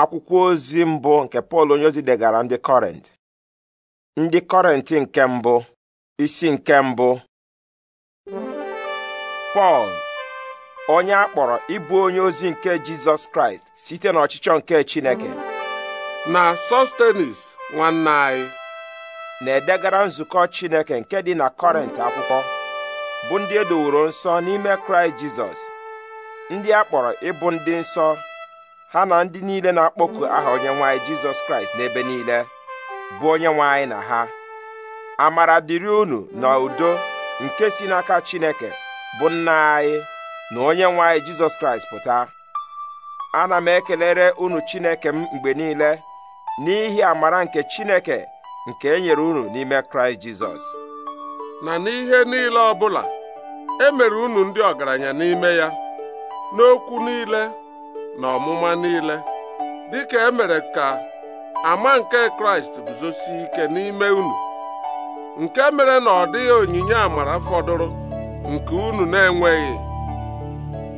akwụkwọ ozi mbụ nke pọl onyeozi degara ndị kọrent ndị kọrent nke mbụ isi nke mbụ pọl onye a kpọrọ ịbụ onye ozi nke jizọs kraịst site n'ọchịchọ nke chineke na sostenis nwanne anyị na-edegara nzukọ chineke nke dị na kọrent akwụkwọ bụ ndị edoworo nsọ n'ime kraịst jizọs ndị a kpọrọ ịbụ ndị nsọ ha na ndị niile na-akpọku aha onye nwanyị jizọs kraịst n'ebe niile bụ onye nwanyị na ha amara dịrị unu na udo nke si n'aka chineke bụ nna anyị na onye nwanyị jizọs kraịst pụta ana m ekelere unu chineke m mgbe niile n'ihi amara nke chineke nke e nyere unu n'ime kraịst jizọs na n'ihe niile ọbụla e mere unu ndị ọgaranya n'ime ya n'okwu niile na ọmụma niile dịka emere ka ama nke kraịst guzosi ike n'ime unu nke mere na ọ dịghị onyinye amara fọdụrụ nke unu na-enweghị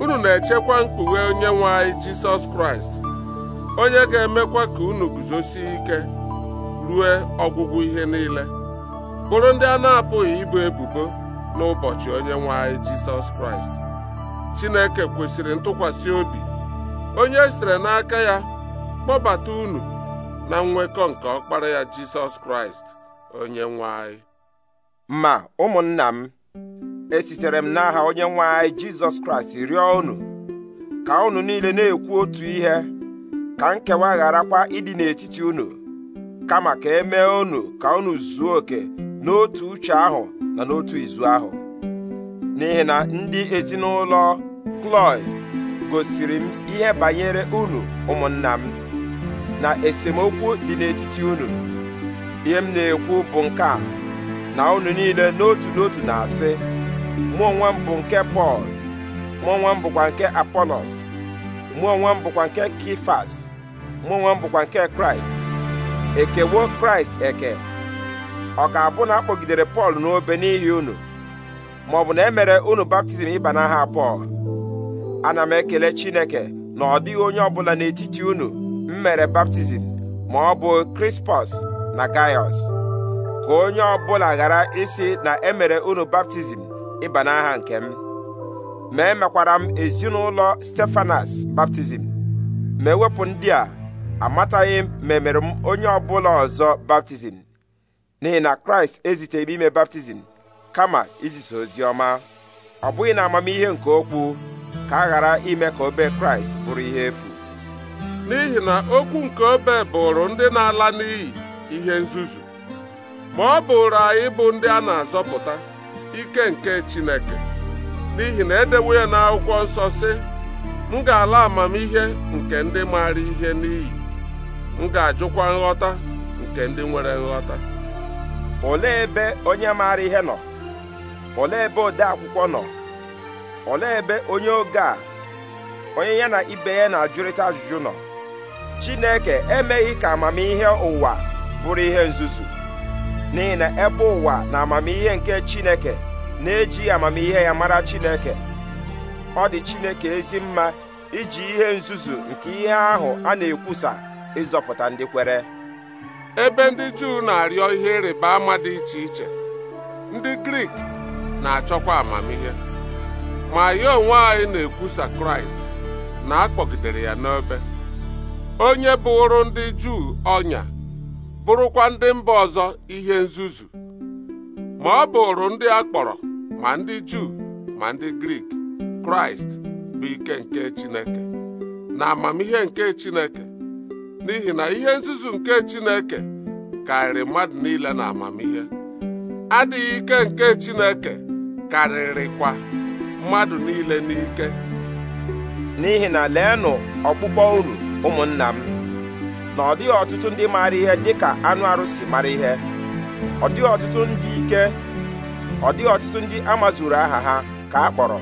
unu na-echekwa mkpughe onye nwe anyị jisọs kraịst onye ga-emekwa ka unu guzosi ike rue ọgwụgwụ ihe niile bụrụ ndị a na-apụghị ibu ebubo n'ụbọchị onye nwe anyị jisọs kraịst chineke kwesịrị ntụkwasị obi onye e sitere n'aka ya kpọbata unu na nwekọ nke ọkpara ya jisọs kraịst onye nwe anyị. ma ụmụnna m esitere m n'aha onye nwe anyị jizọs kraịst rịọ unu ka unu niile na-ekwu otu ihe ka nkewa kwa ịdị n'etiti unu kama ka e mee unu ka unu zuo oke n'otu uche ahụ na n'otu izu ahụ n'ihi na ndị ezinụlọ Kloy gosiri m ihe banyere unu ụmụnna m na esemokwu dị n'etiti unu ihe m na-ekwu bụ nke a na unu niile n'otu n'otu na-asị mụ onwe m bụ nke Pọl mụ onwe m bụkwa nke Apolos mụ onwe m bụkwa nke Kifas mụ onwe m bụkwa nke Kraịst ekewo Kraịst eke ọ ka abụ na akpọgidere Pọl n'obe n'ihi unu maọbụ na e mere unu baptizim ịba n'aha Pọl ana m ekele chineke na ọ dịghị onye ọbụla n'etiti unu m mere baptizim ma ọ bụ krispọs na gaiọs ka onye ọbụla ghara isi na emere unu baptizim ịba n'aha nke m ma emekwara m ezinụlọ stefanas baptizim ma ewepụ ndị a amataghị m ma emere m onye ọbụla ọzọ baptizim n'ihi na kraịst eziteghị ime baptizim kama izisa ozi ọma ọ bụghị na amamihe nke okwu ka a ghara ime ka obe kraịst bụrụ ihe efu n'ihi na okwu nke obe bụrụ ndị na-ala n'iyi ihe nzuzu ma ọ bụrụ anyị bụ ndị a na-azọpụta ike nke Chineke n'ihi na edewo ya n'akwụkwọ nsọ si m ga-ala amamihe nke ndị maara ihe n'iyi m ga-ajụkwa nghọta nke ndị nwere nghọta olee ebe onye maara ihe nọ olee ebe ode akwụkwọ nọ olee ebe onye oge a onye ya na ibe ya na-ajụrịta ajụjụ nọ chineke emeghị ka amamihe ụwa bụrụ ihe nzuzu n'ihi na ebe ụwa na amamihe nke chineke na eji amamihe ya mara chineke ọ dị chineke ezi mma iji ihe nzuzu nke ihe ahụ a na-ekwusa ịzọpụta ndị kwere ebe ndị Juu na-arịọ ihe ịrịba ama dị iche iche ndị Grik na-achọkwa amamihe ma ya onwe anyị na-ekwusa kraịst na akpọgidere ya n'ebe, onye bụrụ ndị juu ọnya bụrụkwa ndị mba ọzọ ihe nzuzu ma ọ bụrụ ndị a kpọrọ ma ndị juu ma ndị grik kraịst bụ ike nke chineke na amamihe nke chineke n'ihi na ihe nzuzu nke chineke karịrị mmadụ niile na amamihe adịghị ike nke chineke karịrịkwa mmadụ niile n'ike n'ihi na leenụ ọkpụkpọ unu ụmụnna m na ọ dịghị ọtụtụ ndị maara ihe dịka anụ arụsị mara ihe ọ dịghị ọtụtụ ndị ike ọ dịghị ọtụtụ ndị amazuru aha ha ka a kpọrọ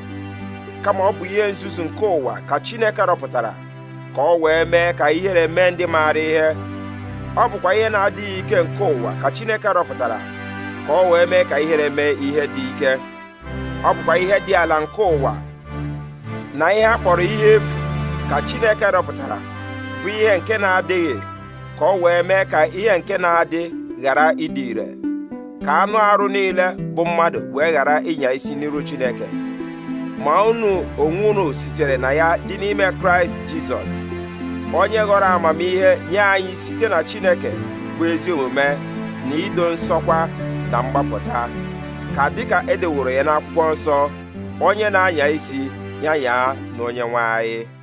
kama ọ bụ ihe nzuzu nke ụwa ka Chineke rọpụtara ka ọ wee mee ka ihere mee ndị maara ihe ọ bụkwa ihe na-adịghị ike nke ụwa ka Chineke rọpụtara ka ọ wee mee ka ihere mee ihe dị ike ọ bụkwa ihe dị ala nke ụwa na ihe a kpọrọ ihe efu ka Chineke rọpụtara bụ ihe nke na-adịghị ka ọ wee mee ka ihe nke na-adị ghara ịdị ire ka anụ arụ niile bụ mmadụ wee ghara ịnya isi n'iru Chineke ma unu onwe unu sitere na ya dị n'ime Kraịst Jizọs onye ghọrọ amamihe nye anyị site na Chineke bụ ezi omume na ido nsọkwa na mgbapụta ka dịka edeworo ya n'akwụkwọ nsọ onye na-anya isi ya yaa na onye nwe